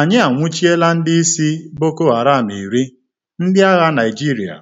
Anyị anwụchiela ndị isi Boko Haram iri, ndị agha Naịjirịa.